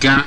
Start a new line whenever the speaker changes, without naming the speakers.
ga